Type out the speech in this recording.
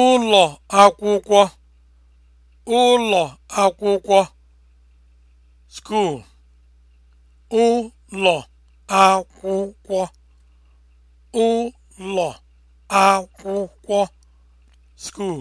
ụlọ akwụkwọ ụlọ akwụkwọ school ụlọ akwụkwọ ụlọ akwụkwọ school